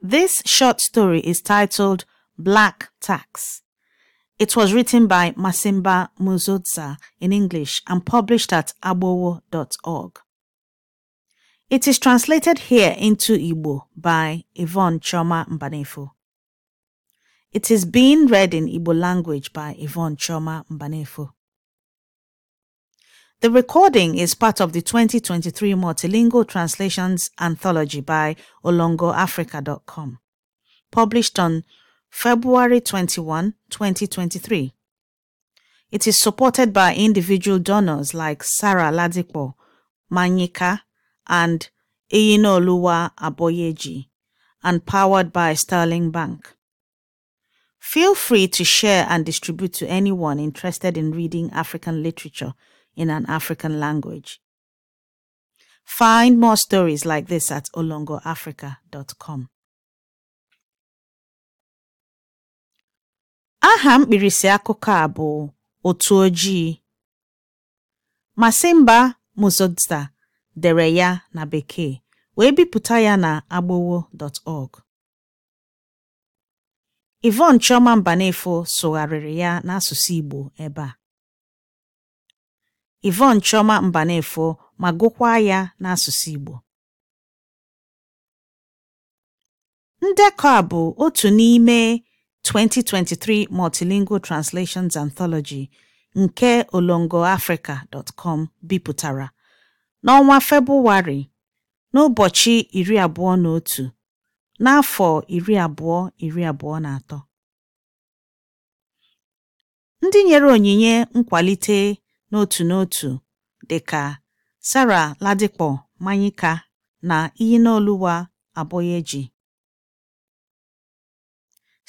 This short story is titled Black Tax. It was written by Masimba Muzodza in English and published at abowo.org. It is translated here into Igbo by Yvonne Choma Mbanefo. It is being read in Igbo language by Yvonne Choma Mbanefo. The recording is part of the 2023 Multilingual Translations Anthology by olongoafrica.com, published on February 21, 2023. It is supported by individual donors like Sarah Ladipo, Manyika, and Iyinoluwa Aboyeji, and powered by Sterling Bank. Feel free to share and distribute to anyone interested in reading African literature – in an African language. Find more stories like this at olongoafrica.com. Aha mkpirisi akụkọ a bụ Otu Ojii. Masimba Muzodza dere ya na Bekee wee bipụta ya na agbowo.org. Yvonne Chioma Mbanefo sụgharịrị ya n'asụsụ Igbo ebe a. Yvonne Chioma Mbanefo ma gụkwaa ya n'asụsụ Igbo ndekọ a bụ otu n'ime 2023 Multilingual Translations Anthology nke olongo olongoafrica.com bipụtara n'ọnwa Febụwarị n'ụbọchị iri abụọ na otu n'afọ iri iri abụọ abụọ na atọ. Ndị nyere onyinye nkwalite n'otu n'otu dịka Sarah Ladipo Manyika na iyi Iyinoluwa eji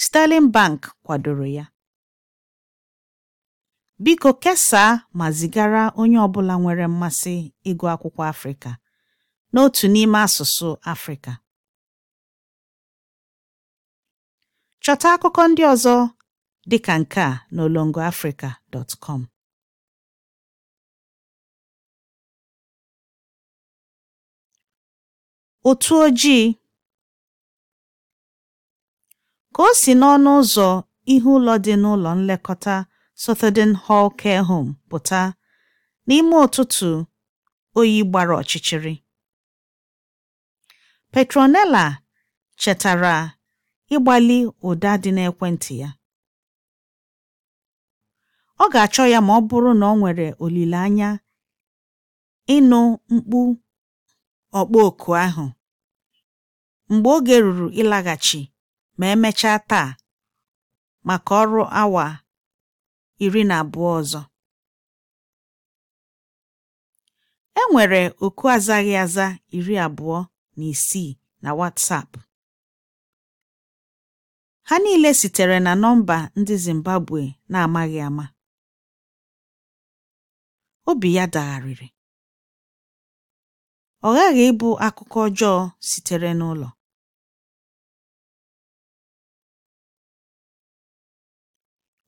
Sterling Bank kwadoro ya. Biko kesaa ma zigara onye ọbụla nwere mmasị ịgụ akwụkwọ Afrịka n'otu n'ime asụsụ Afrịka. Chọta akụkọ ndị ọzọ dịka nke a n'olongo na olongoafrica.com otu ojii ka o si n'ọnụ ụzọ ihu ụlọ dị n'ụlọ nlekọta Southern Hall Care Home pụta n'ime ụtụtụ oyi gbara ọchịchịrị Petronella chetara ịgbalị ụda dị n'ekwentị ya ọ ga-achọ ya ma ọ bụrụ na ọ nwere olileanya ịnụ mkpu ọkpọ oku ahụ mgbe oge ruru ịlaghachi ma emechaa taa maka ọrụ awa iri na abụọ ọzọ. E nwere oku azaghị aza iri abụọ na isii na WhatsApp. Ha niile sitere na nọmba ndị Zimbabwe na-amaghị ama. Obi ya dagharịrị. Ọ ghaghị ịbụ akụkọ ọjọọ sitere n'ụlọ.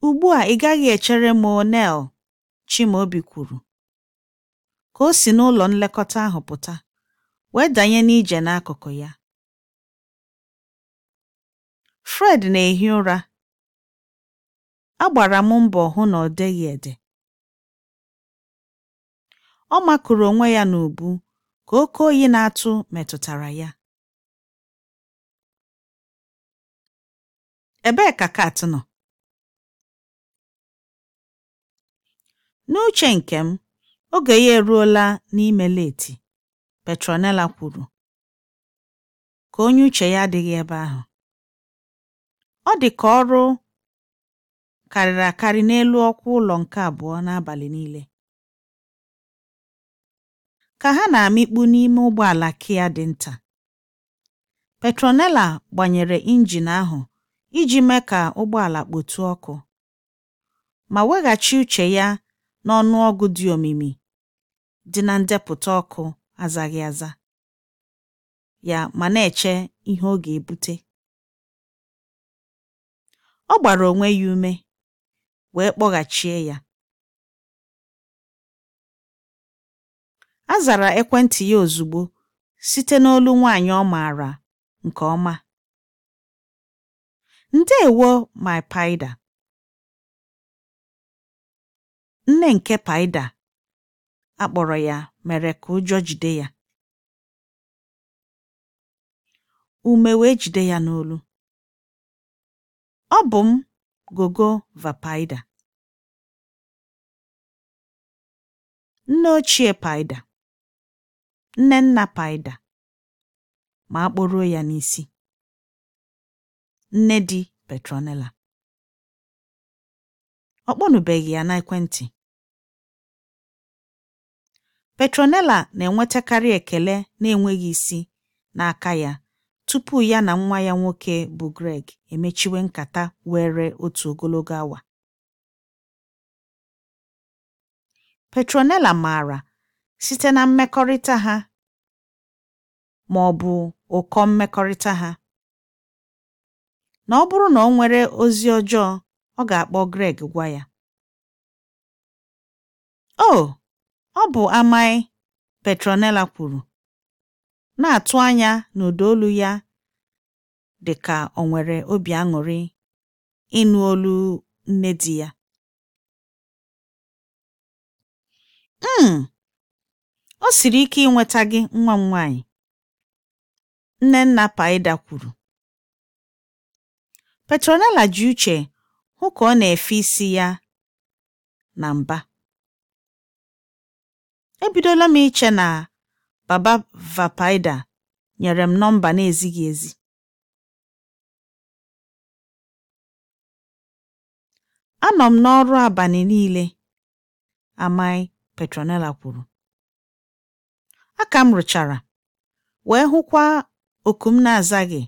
“Ugbu a ị gaghị echere m onel Chimaobi kwuru ka o si n'ụlọ nlekọta ahụ pụta wee danye n'ije n'akụkụ ya. Fred na-ehi ụra, agbara m mbọ hụ na ọ deghị ede. Ọ makụrụ onwe ya n'ubu ka oke oyi na-atụ metụtara ya. Ebee ka Kat nọ? N'uche nke m, oge ya eruola n'ime Leti, Petronella kwuru, ka onye uche ya adịghị ebe ahụ. Ọ dị ka ọrụ karịrị akarị n'elu ọkwa ụlọ nke abụọ n'abalị niile. Ka ha na-amịkpu n'ime ụgbọala Kia dị nta, Petronella gbanyere injin ahụ iji mee ka ụgbọala kpotụọ ọkụ, ma weghachi uche ya n'ọnụọgụ dị omimi dị na ndepụta ọkụ azaghị aza ya ma na-eche ihe ọ ga-ebute. Ọ gbara onwe ya ume wee kpọghachie ya. A zara ekwentị ya ozugbo site n'olu nwanyị ọ maara nke ọma. ndeewo my paida. Nne nke Paida akpọrọ ya mere ka ụjọ jide ya, ume wee jide ya n'olu. Ọ bụ m, Gogo Vapaida, nne ochie Paida, nne nna Paida, ma a ya n'isi, nne di petronela ọ kpọnụbeghị ya n'ekwentị. Petronella na-enwetakarị ekele na-enweghị isi n'aka ya tupu ya na nwa ya nwoke bụ Greg emechiwe nkata were otu ogologo awa. Petronella maara site na mmekọrịta ha ma ọ bụ ụkọ mmekọrịta ha na ọ bụrụ na ọ nwere ozi ọjọọ ọ ga-akpọ Greg gwa ya. O, oh, ọ bụ amaị Petronella kwuru, na-atụ anya n'ụda olu ya dị ka o nwere obi aṅụrị ịnụ olu nne di ya. Mm, o siri ike ịnweta gị nwa m nwaanyị, Nnenna Paịda kwuru. Petronella ji uche hụ ka ọ na-efe isi ya na mba. Ebidola m iche na Baba Vapaida nyere m nọmba na-ezighị ezi. Anọ m n'ọrụ abalị niile, Amai Petronella kwuru. Aka m rụchara, wee hụkwa oku m na-azaghị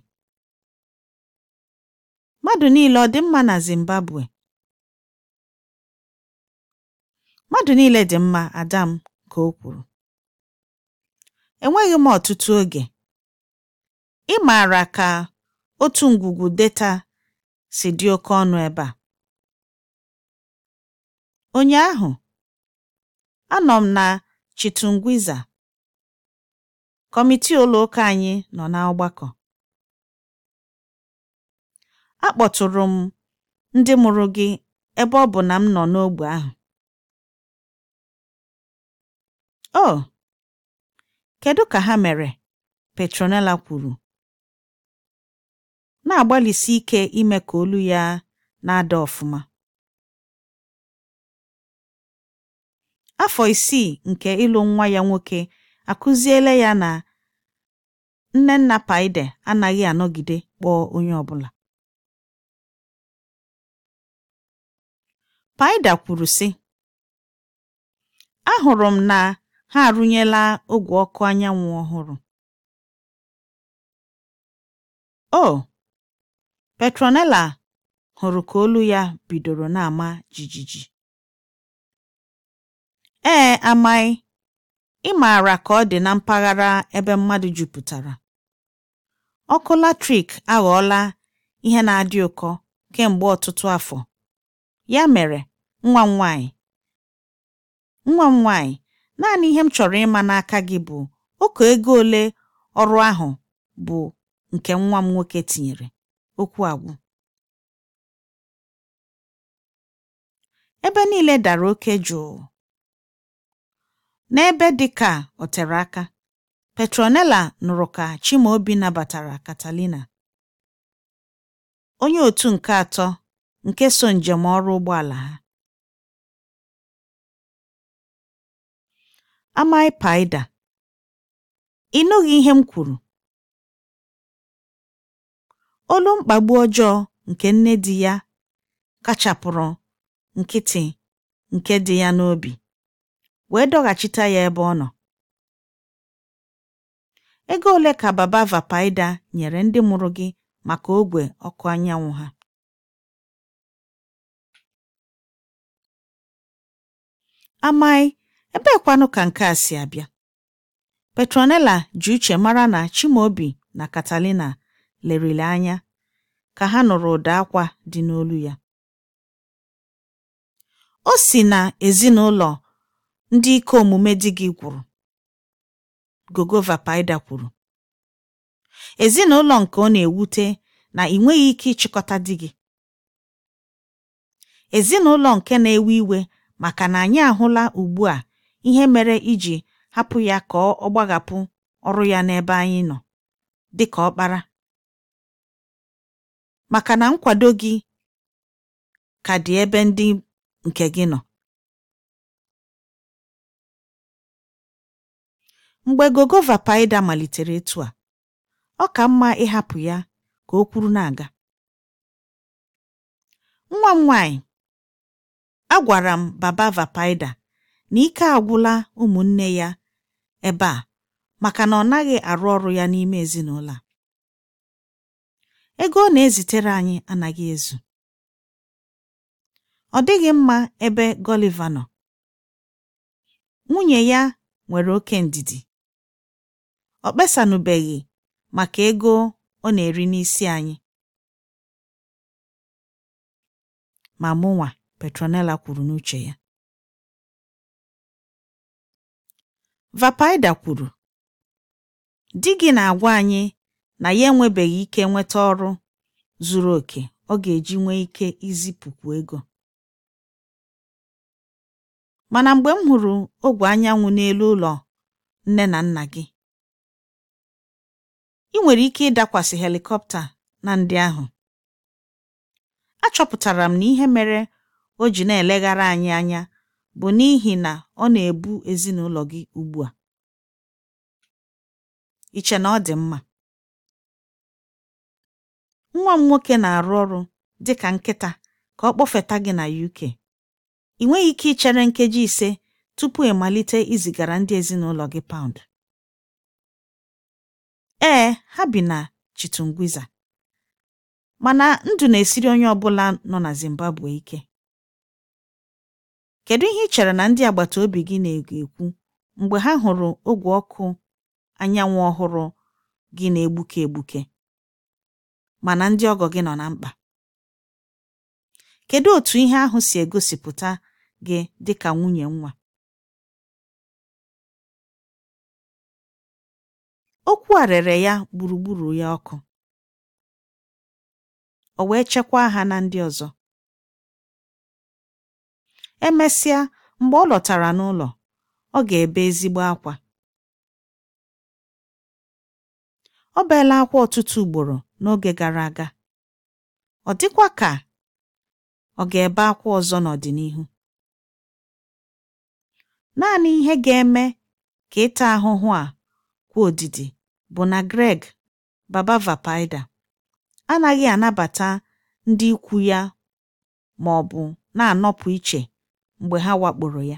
Mmadụ niile ọ dị mma na Zimbabwe? Mmadụ niile dị mma, adam ka o kwuru. Enweghị m ọtụtụ oge. Ị maara ka otu ngwugwu data si dị oke ọnụ ebe a. ahụ, anọ m na Chitungwiza, kọmitii ụlọ ụka anyị nọ na ọgbakọ. Akpọtụrụ m ndị mụrụ gị ebe ọ bụ na m nọ n'ógbè ahụ. Oh, kedu ka ha mere? Petronella kwuru, na-agbalịsi ike ime ka olu ya na-ada ọfụma. Afọ isii nke ịlụ nwa ya nwoke akụziele ya na Nnenna Paide anaghị anọgide kpọọ onye ọ Paida kwuru sị: “Ahụrụ m na ha arụnyela ogwe ọkụ anyanwụ ọhụrụ. "O! Petronella hụrụ ka olu ya bidoro na-ama jijiji. Ee, amaghị ị maara ka ọ dị na mpaghara ebe mmadụ jupụtara, ọkụ latrik aghọọla ihe na-adị ụkọ kemgbe ọtụtụ afọ. Ya mere, nwa m nwanyị, nwa m nwanyị, naanị ihe m chọrọ ịma n'aka gị bụ ọkụ ego ole ọrụ ahụ bụ nke nwa m nwoke tinyere. Okwu agwụ. Ebe niile dara oke jụụ. N'ebe dị ka o tere aka, Petronella nụrụ ka Chimaobi nabatara Catalina, onye otu nke atọ nke so njem ọrụ ụgbọala ha. Amai Paida: Ị nụghị ihe m kwuru. Olu mkpagbu ọjọọ nke nne di ya kachapụrụ nkịtị nke dị ya n'obi wee dọghachita ya ebe ọ nọ. Ego ole ka Baba Vapidya nyere ndị mụrụ gị maka ogwe ọkụ anyanwụ ha? amaghị ebeekwanụ ka nke a si abịa petronella ji uche mara na chimaobi na katalina lerili anya ka ha nụrụ ụda akwa dị n'olu ya o si na ezinụlọ ndị ike omume di gị gwụrụ gogova paida kwuru ezinụlọ nke ọ na-ewute na ị nweghị ike ịchịkọta di gị ezinụlọ nke na-ewe iwe maka na anyị ahụla ugbu a ihe mere iji hapụ ya ka ọ gbagapụ ọrụ ya n'ebe anyị nọ dị ka ọkpara maka na nkwado gị ka dị ebe ndị nke gị nọ mgbe Gogova Paịda malitere etu a ọ ka mma ịhapụ ya ka o kwuru na-aga nwa m nwaanyị agwara m baba Vapaida na ike agwụla ụmụnne ya ebe a maka na ọ naghị arụ ọrụ ya n'ime ezinụlọ a ego ọ na-ezitere anyị anaghị ezu ọ dịghị mma ebe Gọliva nọ nwunye ya nwere oke ndidi ọ kpesanụbeghị maka ego ọ na-eri n'isi anyị ma mụnwa Petronella kwuru n'uche ya Vapaida kwuru di gị na-agwa anyị na ya enwebeghị ike nweta ọrụ zuru oke ọ ga-eji nwee ike izipụkwu ego mana mgbe m hụrụ ogwe anyanwụ n'elu ụlọ nne na nna gị ị nwere ike ịdakwasị helikọpta na ndị ahụ achọpụtara m na ihe mere o ji na-eleghara anyị anya bụ n'ihi na ọ na-ebu ezinụlọ gị ugbu a. Iche na ọ dị mma. Nwa m nwoke na-arụ ọrụ dị ka nkịta ka ọ kpọfeta gị na UK. Ị nweghị ike ichere nkeji ise tupu ịmalite izigara ndị ezinụlọ gị paụnd. Ee, ha bi na Chitungwiza, mana ndụ na-esiri onye ọ nọ na Zimbabwe ike. Kedu ihe ị chere na ndị agbata obi gị na ekwu mgbe ha hụrụ ogwe ọkụ anyanwụ ọhụrụ gị na-egbuke egbuke mana ndị ọgọ gị nọ na mkpa? Kedu otu ihe ahụ si egosipụta gị dị ka nwunye nwa? Okwu a ya gburugburu ya ọkụ, o wee chekwaa ha na ndị ọzọ. Emesịa, mgbe ọ lọtara n'ụlọ, ọ ga-ebe ezigbo akwa. Ọ beela akwa ọtụtụ ugboro n'oge gara aga, ọ dịkwa ka ọ ga-ebe akwa ọzọ n'ọdịnihu. Naanị ihe ga-eme ka ịta ahụhụ a kwụ odidi bụ na Greg "Baba" Valparaidan anaghị anabata ndị ikwu ya ma ọ bụ na-anọpụ iche mgbe ha wakporo ya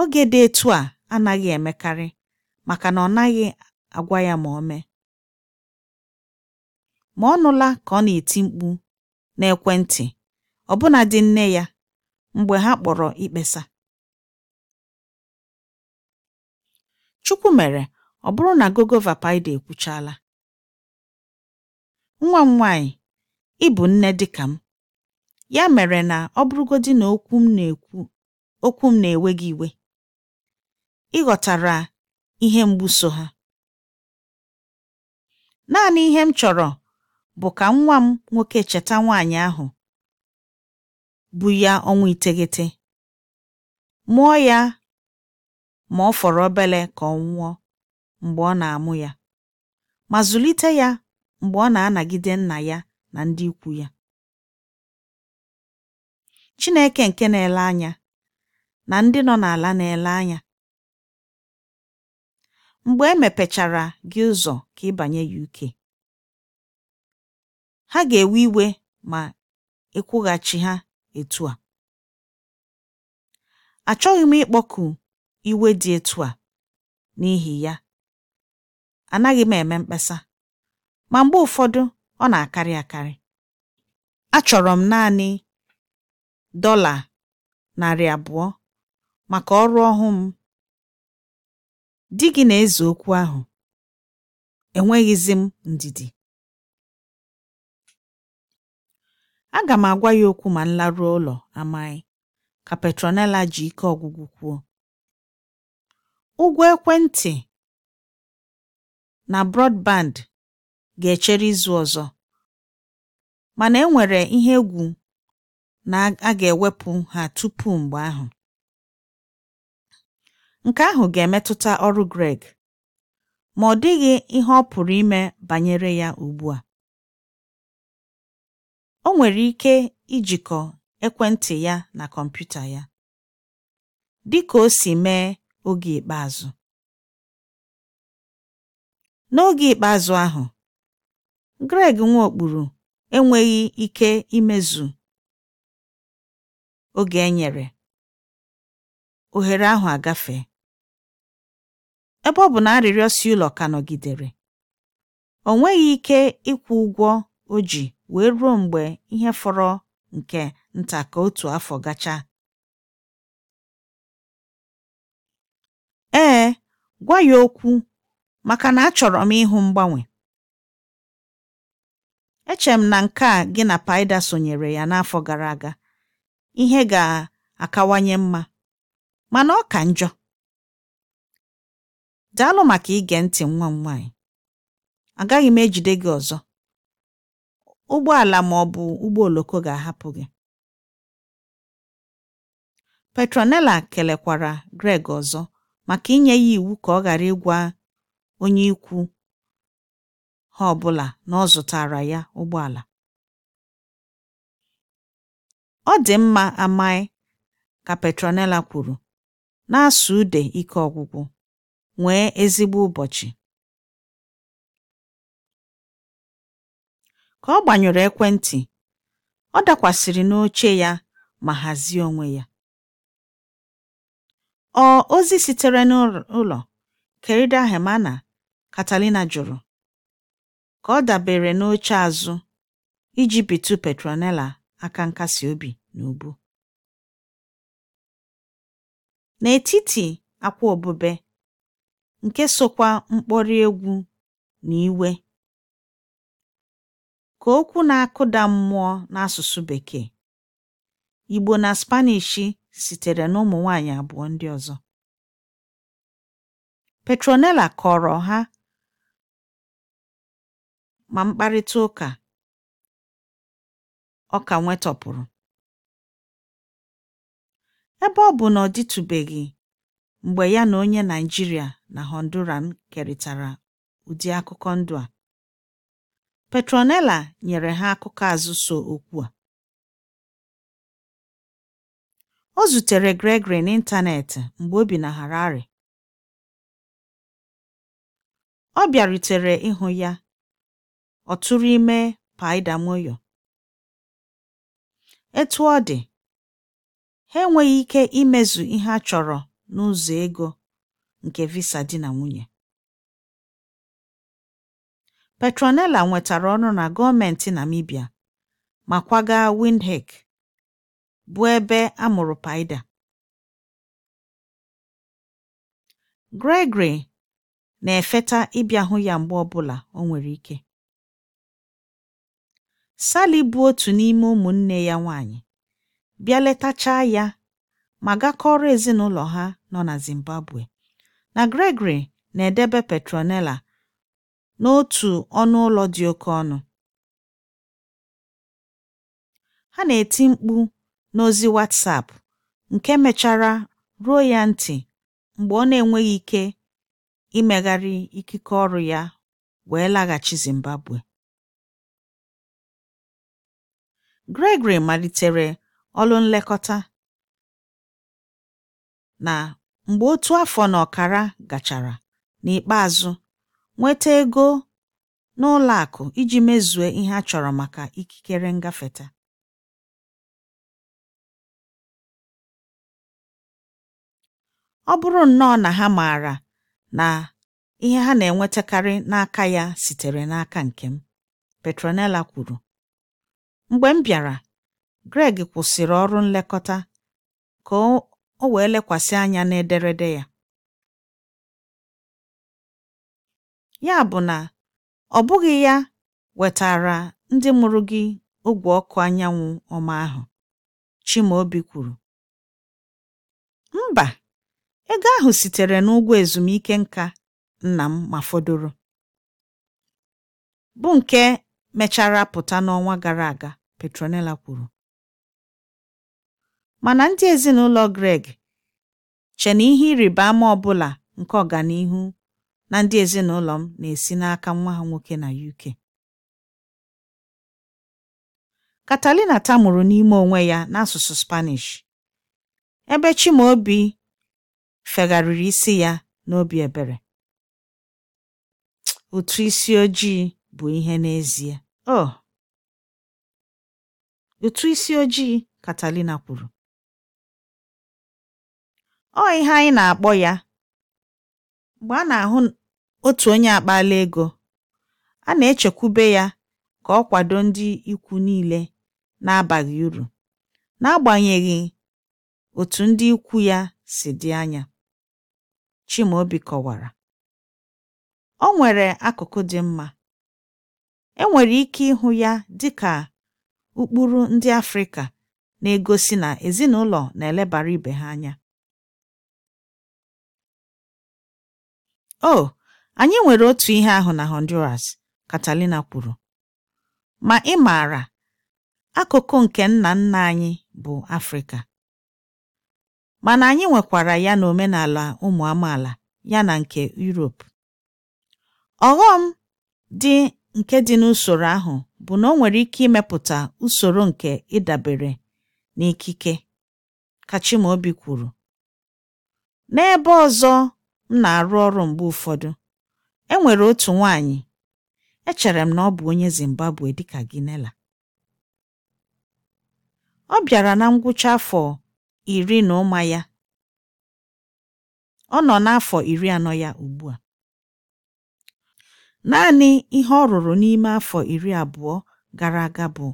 oge dị etu a anaghị emekarị maka na ọ naghị agwa ya ma o mee ma ọ nụla ka ọ na-eti mkpu n'ekwentị ọbụna dị nne ya mgbe ha kpọrọ ikpesa Chukwu mere ọ bụrụ na Gogova Paịda ekwuchaala nwa m nwaanyị ị bụ nne dịka m Ya mere na ọ bụrụgodị na okwu m na-ekwu okwu m na-ewe gị iwe, ị ghọtara ihe mgbu so ha. Naanị ihe m chọrọ bụ ka nwa m nwoke cheta nwaanyị ahụ bụ ya ọnwa iteghete, mụọ ya ma ọ fọrọ obere ka ọ nwụọ mgbe ọ na-amụ ya, ma zụlite ya mgbe ọ na-anagide nna ya na ndị ikwu ya. Chineke nke na-ele anya na ndị nọ n'ala na-ele anya mgbe e mepechara gị ụzọ ka ị banye UK ha ga-ewe iwe ma ịkwụghachi e ha etu a achọghị m ịkpọku iwe dị etu a n'ihi ya anaghị m eme mkpesa ma mgbe ụfọdụ ọ na-akarị akarị achọrọ m naanị dọla narị abụọ maka ọrụ ọhụụ m. Di gị na-eze okwu ahụ, enweghịzi m ndidi. Aga m agwa ya okwu ma m laruo ụlọ, Amaghị, ka Petronella ji ike ọgwụgwụ kwuo. Ụgwọ ekwentị na brọdband ga-echere izu ọzọ, mana enwere ihe egwu na a ga-ewepụ ha tupu mgbe ahụ. Nke ahụ ga-emetụta ọrụ Greg, ma ọ dịghị ihe ọ pụrụ ime banyere ya ugbu a. O nwere ike ijikọ ekwentị ya na kọmputa ya, dị ka o si mee oge ikpeazụ. N'oge ikpeazụ ahụ, Greg nweokpuru enweghị ike imezu oge e nyere ohere ahụ agafe. ebe ọ bụ na arịrịọ ụlọ ka nọgidere o nweghị ike ịkwụ ụgwọ o ji wee ruo mgbe ihe fọrọ nke nta ka otu afọ gachaa ee gwa ya okwu maka na achọrọ m ịhụ mgbanwe echere m na nke a gị na Paịda sonyere ya n'afọ gara aga ihe ga-akawanye mma mana ọ ka njọ daalụ maka ige ntị nwa m nwaanyị agaghị m ejide gị ọzọ ụgbọala ma ọ bụ ụgbọ oloko ga-ahapụ gị Petronella kelekwara Greg ọzọ maka inye ya iwu ka ọ ghara ịgwa onye ikwu ha ọbụla na ọ zụtara ya ụgbọala “Ọ dị mma amaghị ka Petronella kwuru, na-asụ ude ike ọgwụgwụ. “Nwee ezigbo ụbọchị!” Ka ọ gbanyụrụ ekwentị, ọ dakwasịrị n'oche ya ma hazie onwe ya. Ọ ozi sitere n'ụlọ Querida Hermana, Catalina jụrụ, ka ọ dabere n'oche azụ iji bitu Petronella aka nkasi obi. n'ubu. N'etiti akwa obube, nke sokwa mkpori egwu na iwe, ka okwu na-akụda mmụọ n'asụsụ Bekee, Igbo na Spanish sitere n'ụmụ nwanyị abụọ ndị ọzọ. Petronella kọrọ ha ma mkparịta ụka ọ ka nwetọpụrụ. Ebe ọ bụ na ọ dịtụbeghị mgbe ya na onye Naijiria na Honduran kerịtara ụdị akụkọ ndụ a, Petronella nyere ha akụkọ azụ so okwu a. Ọ zutere Gregory n'ịntanetị mgbe o bi na Harare. Ọ bịarutere ịhụ ya, ọ tụrụ ime Paịda Moyo. Etu ọ dị Ha enweghị ike imezu ihe a chọrọ n'ụzọ ego nke visa di na nwunye. Petronella nwetara ọrụ na gọọmentị Namibia ma kwaga Windhoek, bụ ebe a mụrụ Paida. Gregory na-efeta ịbịa hụ ya mgbe ọbụla o nwere ike. Sally bụ otu n'ime ụmụnne ya nwanyị. bịa letachaa ya ma gakọrọ ezinụlọ ha nọ na Zimbabwe. Na Gregory na-edebe Petronella n'otu ọnụ ụlọ dị oke ọnụ. Ha na-eti mkpu n'ozi WhatsApp nke mechara ruo ya ntị mgbe ọ na-enweghị ike imegharị ikike ọrụ ya wee laghachi Zimbabwe. Gregory malitere Ọlụ nlekọta, na mgbe otu afọ na ọkara gachara, n'ikpeazụ nweta ego n'ụlọ akụ iji mezue ihe a chọrọ maka ikikere ngafeta. Ọ bụrụ nnọọ na ha maara na ihe ha na-enwetakarị n'aka ya sitere n'aka nke m, Petronella kwuru, mgbe m bịara Greg kwụsịrị ọrụ nlekọta ka o wee lekwasị anya n'ederede ya. Ya bụ na ọ bụghị ya wetaara ndị mụrụ gị ogwe ọkụ anyanwụ ọma ahụ, Chimaobi kwuru. Mba, ego ahụ sitere n'ụgwọ ezumike nka nna m ma fọdụrụ, bụ nke mechara pụta n'ọnwa gara aga, Petronella kwuru. Mana ndị ezinụlọ Greg che na ihe ịrịba ama ọbụla nke ọganihu na ndị ezinụlọ m na-esi n'aka nwa ha nwoke na UK. Catalina tamuru n'ime onwe ya n'asụsụ Spanish, ebe Chimaobi fegharịrị isi ya n'obi ebere. Utu isi ojii bụ ihe n'ezie. “Oh, ụtụ isi ojii,” katalina kwuru. ọ ihe anyị na-akpọ ya. Mgbe a na-ahụ otu onye akpaala ego, a na-echekwube ya ka ọ kwado ndị ikwu niile na-abaghị uru, n'agbanyeghị otu ndị ikwu ya si dị anya, Chimaobi kọwara. O nwere akụkụ dị mma, e nwere ike ịhụ ya dị ka ụkpụrụ ndị Afrịka na-egosi na ezinụlọ na-elebara ibe ha anya. o anyị nwere otu ihe ahụ na honduras Catalina kwuru ma ị maara akụkụ nke nna nna anyị bụ afrịka mana anyị nwekwara ya na omenala ụmụ amaala ya na nke yuropu ọghọm dị nke dị n'usoro ahụ bụ na o nwere ike imepụta usoro nke ịdabere n'ikike ka Chimaobi kwuru n'ebe ọzọ m na-arụ ọrụ mgbe ụfọdụ, e nwere otu nwaanyị echere m na ọ bụ onye Zimbabwe dịka Ginela. Ọ bịara na ngwụcha afọ iri na ụma ya ọ nọ n'afọ iri anọ ya ugbu a. Naanị ihe ọ rụrụ n'ime afọ iri abụọ gara aga bụ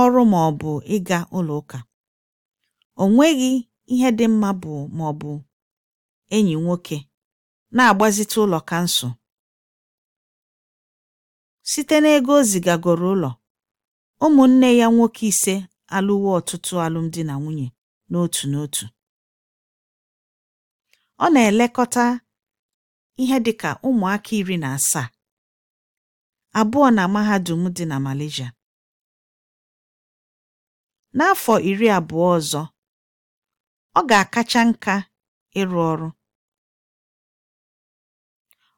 ọrụ ma ọ bụ ịga ụlọ ụka. O nweghị ihe dị mma bụ ma bụ enyi nwoke na-agbazite ụlọ kansụl site n'ego o zigagoro ụlọ ụmụnne ya nwoke ise alụwo ọtụtụ alụmdi na nwunye n'otu n'otu ọ na-elekọta ihe dị ka ụmụaka iri na asaa abụọ na mahadum dị na Malaysia n'afọ iri abụọ ọzọ ọ ga-akacha nka ịrụ ọrụ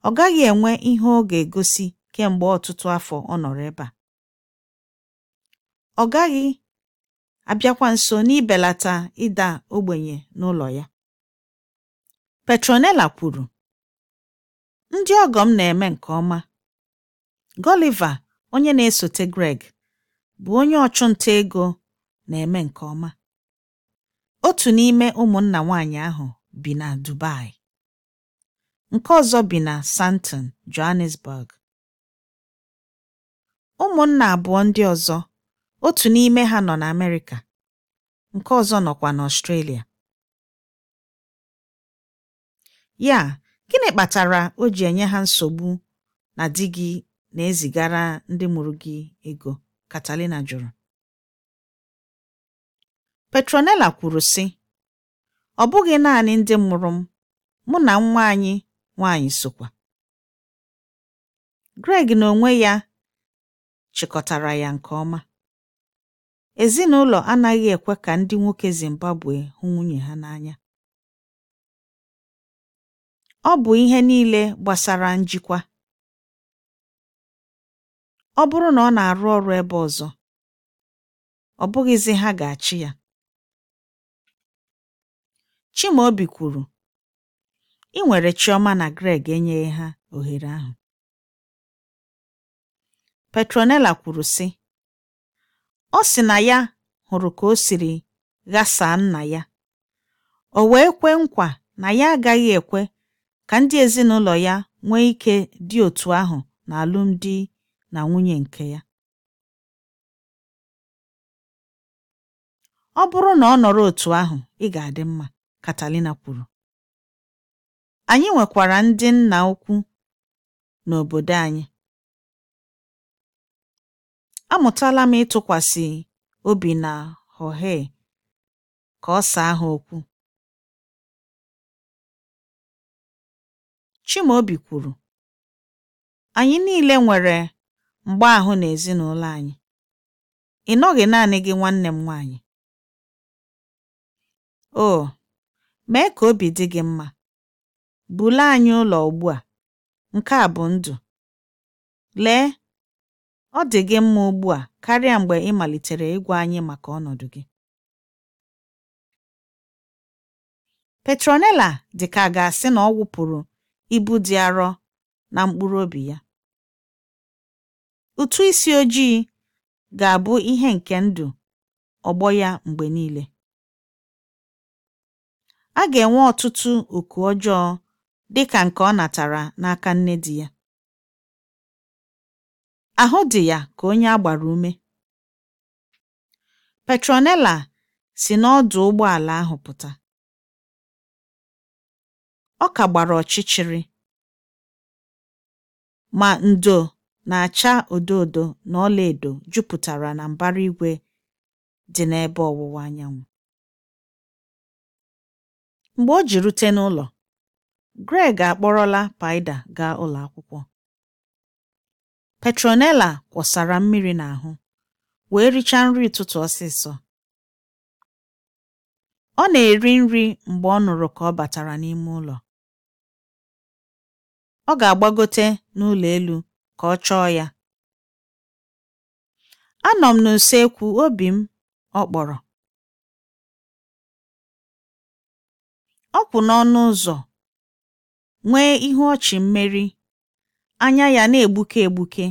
Ọ gaghị enwe ihe ọ ga egosi kemgbe ọtụtụ afọ ọ nọrọ ebe a. Ọ gaghị abịakwa nso n'ibelata ịda ogbenye n'ụlọ ya. Petronella kwuru, Ndị ọgọ m na eme nke ọma. gọliva onye na esote Greg, bụ onye ọchụnta ego na eme nke ọma. Otu n'ime ụmụnna nwanyị ahụ bi na Dubai. nke ọzọ bi na Santon, Johannesburg. Ụmụnna abụọ ndị ọzọ, otu n'ime ha nọ na amerika nke ọzọ nọkwa na australia Ya, gịnị kpatara o ji enye ha nsogbu na di gị na-ezigara ndị mụrụ gị ego? Catalina jụrụ. Petronella kwuru sị, ọ bụghị naanị ndị mụrụ m, mụ na nwa anyị nwanyị sokwa Greg na onwe ya chịkọtara ya nke ọma ezinụlọ anaghị ekwe ka ndị nwoke Zimbabwe hụ nwunye ha n'anya ọ bụ ihe niile gbasara njikwa ọ bụrụ na ọ na-arụ ọrụ ebe ọzọ ọ bụghịzi ha ga-achị ya Chimaobi kwuru ị nwere Chioma na Greg enyeghị ha ohere ahụ. Petronella kwuru sị: Ọ sị na ya hụrụ ka o siri ghasaa nna ya, o wee kwe nkwa na ya agaghị ekwe ka ndị ezinụlọ ya nwee ike dị otu ahụ na alụmdi na nwunye nke ya. Ọ bụrụ na ọ nọrọ otu ahụ, ị ga-adị mma, katalina kwuru. Anyị nwekwara ndị nna ukwu n'obodo anyị. Amụtala m ịtụkwasị obi na Jorge ka ọ saa ha okwu. Chimaobi kwuru, "Anyị niile nwere mgbaahụ n'ezinụlọ anyị. Ị nọghị naanị gị nwanne m nwaanyị. Oh, mee ka obi dị gị mma. Buru anyị ụlọ ugbu a, nke a bụ ndụ. Lee, ọ dị gị mma ugbu a karịa mgbe ị malitere ịgwa anyị maka ọnọdụ gị. Petronella dị ka a ga-asị na ọ wụpụrụ ibu dị arọ na mkpụrụ obi ya. Ụtụ isi ojii ga-abụ ihe nke ndụ ọgbọ ya mgbe niile. A ga-enwe ọtụtụ oku ọjọọ dị ka nke ọ natara n'aka nne di ya ahụ dị ya ka onye a gbara ume Petronella si n'ọdụ ụgbọala ahụ pụta ọ ka gbara ọchịchịrị ma ndo na-acha odo odo na ọlaedo jupụtara na mbara igwe dị n'ebe ọwụwa anyanwụ mgbe o ji rute n'ụlọ Greg akpọrọla Paịda gaa ụlọ akwụkwọ. Petronella kwọsara mmiri n'ahụ wee richaa nri ụtụtụ ọsịsọ. Ọ na-eri nri mgbe ọ nụrụ ka ọ batara n'ime ụlọ. Ọ ga-agbagote n'ụlọ elu ka ọ chọọ ya. Anọ m n'usekwu obi m, ọ kpọrọ. Ọ kwụ n'ọnụ ụzọ nwee ihu ọchị mmeri, anya ya na-egbuke egbuke.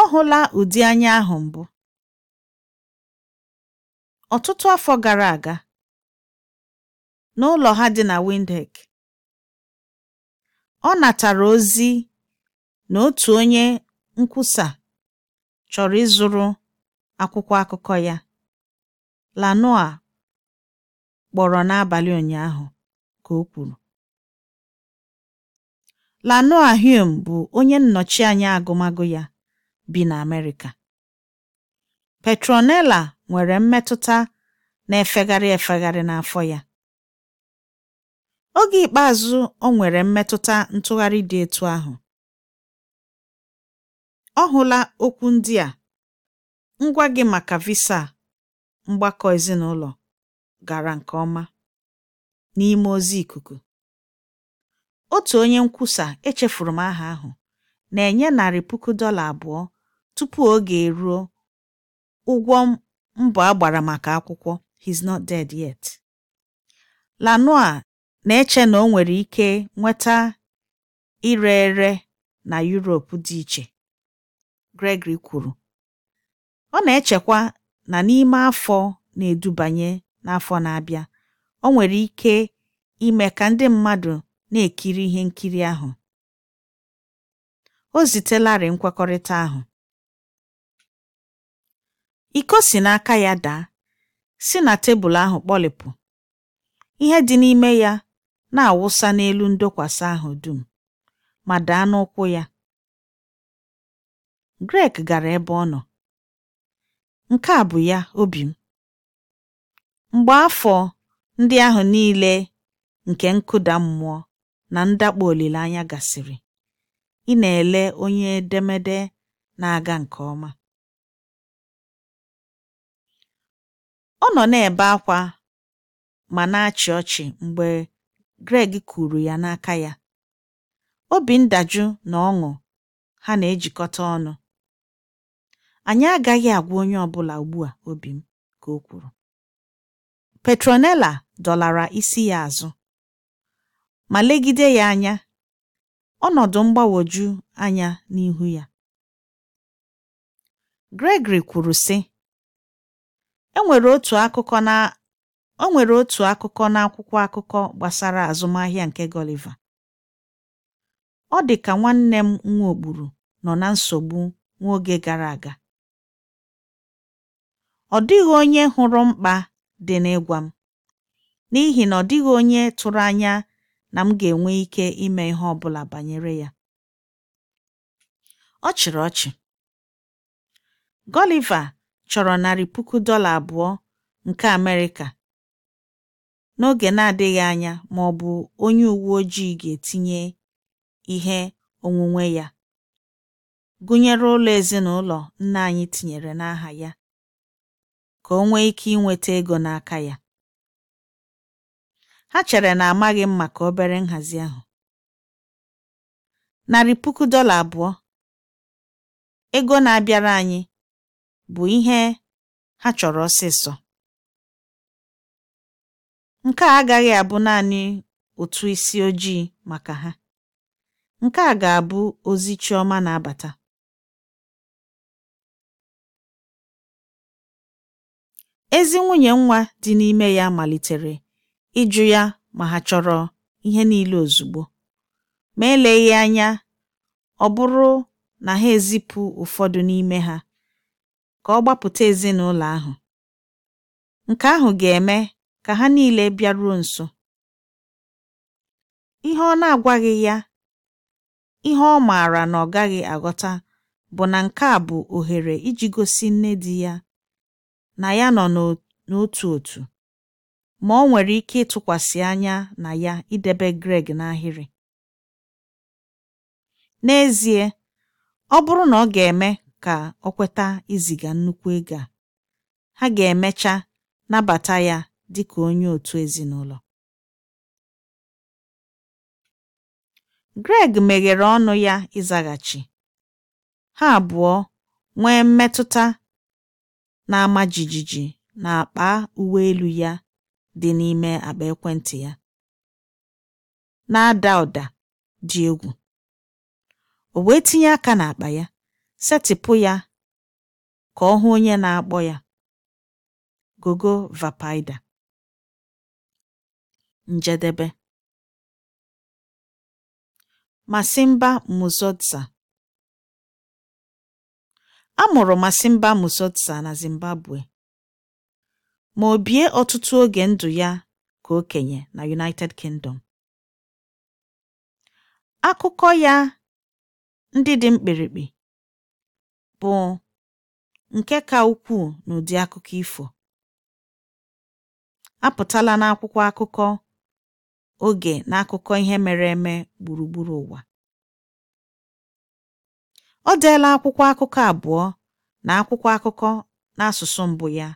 Ọ hụla ụdị anya ahụ mbụ. Ọtụtụ afọ gara aga, n'ụlọ ha dị na windek ọ natara ozi na otu onye nkwusa chọrọ ịzụrụ akwụkwọ akụkọ ya, "Lanoa" kpọrọ n'abalị ụnyaahụ, ka o kwuru. Lanoa Hume bụ onye nnọchi anya agụmagụ ya bi na Amerịka. Petronella nwere mmetụta na-efegharị efegharị n'afọ ya. Oge ikpeazụ o nwere mmetụta ntụgharị dị etu ahụ, ọ hụla okwu ndị a: Ngwa gị maka visa mgbakọ ezinụlọ gara nke ọma n'ime ozi ikuku. Otu onye nkwusa echefuru m aha ahụ na-enye narị puku dọla abụọ tupu oge eruo ụgwọ mbọ agbara maka akwụkwọ He's Not Dead Yet. Lanoa na-eche na o nwere ike nweta ire ere na Europe dị iche, Gregory kwuru, ọ na-echekwa na n'ime afọ na-edubanye n'afọ na-abịa, o nwere ike ime ka ndị mmadụ na-ekiri ihe nkiri ahụ. O zitelarị nkwekọrịta ahụ. Iko si n'aka ya daa, si na tebụl ahụ kpọlịpụ, ihe dị n'ime ya na-awụsa n'elu ndokwasị ahụ dum ma daa n'ụkwụ ya. Greg gara ebe ọ nọ. Nke a bụ ya obi m. Mgbe afọ ndị ahụ niile nke nkụda mmụọ na ndakpọ olileanya gasịrị, ị na-ele onye edemede na-aga nke ọma. Ọ nọ na-ebe akwa ma na-achị ọchị mgbe Greg kwuru ya n'aka ya, obi ndajụ na ọṅụ ha na-ejikọta ọnụ. Anyị agaghị agwa onye ọbụla ugbu a obi m, ka o kwuru. Petronella dọlara isi ya azụ. ma legide ya anya ọnọdụ mgbagwoju anya n'ihu ya. Gregory kwuru, sị: O e nwere otu akụkọ na akwụkwọ akụkọ n'akwụkwọ akụkọ gbasara azụmahịa nke Gọliva. Ọ dị ka nwanne m nwaokpuru nọ na nsogbu nwa oge gara aga. Ọ dịghị onye hụrụ mkpa dị n'ịgwa m, n'ihi na ọ dịghị onye tụrụ anya na m ga-enwe ike ime ihe ọ bụla banyere ya. Ọ chịrị ọchị. Gọliva chọrọ narị puku dọla abụọ nke Amerịka n'oge na-adịghị anya ma ọ bụ onye uwe ojii ga-etinye ihe onwunwe ya, gụnyere ụlọ ezinụlọ nna anyị tinyere n'aha ya, ka o nwee ike inweta ego n'aka ya. Ha chere na amaghị m maka obere nhazi ahụ. Narị puku dọla abụọ ego na-abịara anyị bụ ihe ha chọrọ ọsịsọ. Nke a agaghị abụ naanị otu isi ojii maka ha. Nke a ga-abụ ozi Chioma na-abata. Ezi nwunye nwa dị n'ime ya malitere ịjụ ya ma ha chọrọ ihe niile ozugbo, ma eleghị anya ọ bụrụ na ha ezipụ ụfọdụ n'ime ha ka ọ gbapụta ezinụlọ ahụ, nke ahụ ga-eme ka ha niile bịaruo nso. Ihe ọ na-agwaghị ya, ihe ọ maara na ọ gaghị aghọta bụ na nke a bụ ohere iji gosi nne di ya na ya nọ n'otu otu. ma ọ nwere ike ịtụkwasị anya na ya idebe Greg n'ahịrị. N'ezie, ọ bụrụ na ọ ga-eme ka ọ kweta iziga nnukwu ego a, ha ga-emecha nabata ya dị ka onye otu ezinụlọ. Greg meghere ọnụ ya ịzaghachi, ha abụọ nwee mmetụta na-ama jijiji akpa uwe elu ya dị n'ime akpa ekwentị ya na-ada ụda dị egwu o wee tinye aka n'akpa ya setịpụ ya ka ọ hụ onye na-akpọ ya gogo vapaida njedebe Masimba a mụrụ Masimba Musotsa na Zimbabwe ma o bie ọtụtụ oge ndụ ya ka okenye na United Kingdom. Akụkọ ya ndị dị mkpirikpi bụ nke ka ukwuu n'ụdị akụkọ ifo. Apụtala n'akwụkwọ akụkọ oge na akụkọ ihe mere eme gburugburu ụwa. ọ deela akwụkwọ akụkọ abụọ na akwụkwọ akụkọ n'asụsụ mbụ ya.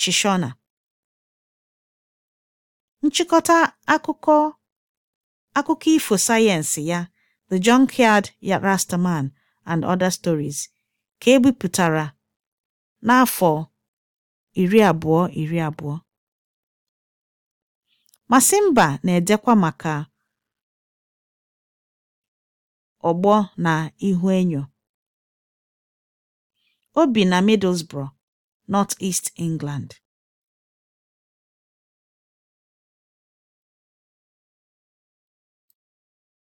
Chishona. Nchịkọta akụkọ ifo sayensị ya The Junkyard Rastaman and Other Stories ka e bipụtara n'afọ iri abụọ iri abụọ. Masimba na-edekwa maka ọgbọ na ihuenyo. O bi na Middlesbrough. North East England.